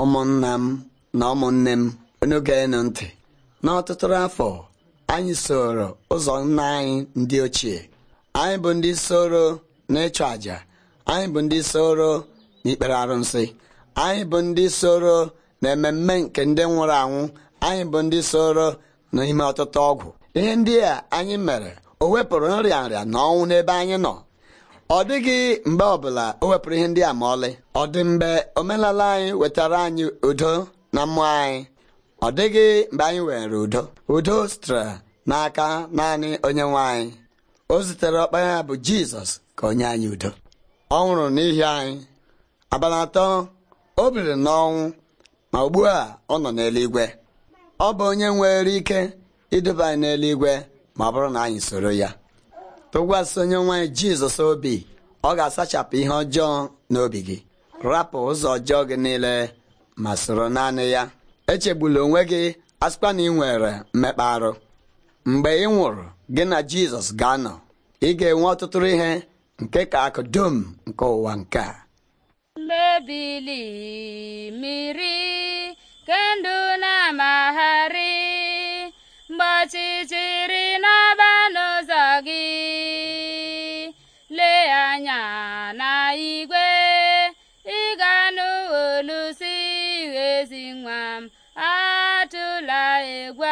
ụmụnna m na ụmụnne m onugenu ntị n'ọtụtụ afọ anyị soro ụzọ nna anyị ndị ochie anyị bụ ndị soro n'ịchụ àjà anyị bụ ndị soro n'ikpere arụsị anyị bụ ndị soro na ememme nke ndị nwụrụ anwụ anyị bụ ndị soro n'ime ọtụtụ ọgwụ ihe ndị a anyị mere o wepụrụ nrịa nrịa na ọnwụ n'ebe anyị nọ ọ dịghị mgbe ọbụla o wepụrụ ihe ndị a ma ọlị ọ dị mgbe omenala anyị wetara anyị udo na mmụọ anyị ọ dịghị mgbe anyị were udo udo sitere n'aka naanị onye nwe anyị o zitere ọkpanya ya bụ Jizọs ka onye anyị udo ọ nwụrụ n'ihi anyị abalị atọ o biri n'ọnwụ ma ugbu a ọ nọ n'eluigwe ọ bụ onye nwere ike iduba anyị n'eluigwe ma ọ bụrụ na anyị soro ya tụkwasị onye nwanyị jizọs obi ọ ga-asachapụ ihe ọjọọ n'obi gị rapụ ụzọ ọjọọ gị niile ma soro naanị ya echegbula onwe gị asịkwa na ị nwere mmekpa arụ mgbe ị nwụrụ gị na jizọs ga-anọ ị ga-enwe ọtụtụ ihe nke ka akụ dum nke ụwa nke a mebili mmiri kendụ na-amagharị mgbe gwa.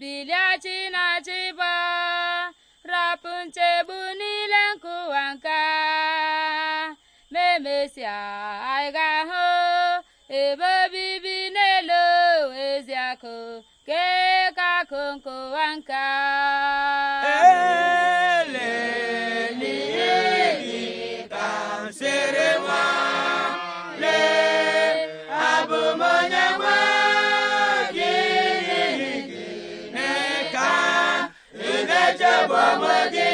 bilie na chịba rapụ nchegbu niile nkụwa nka ma anyị ga-ahụ ebe obibi n'elu ezi akụ kekaku nkụwa nka bụ ọmọdé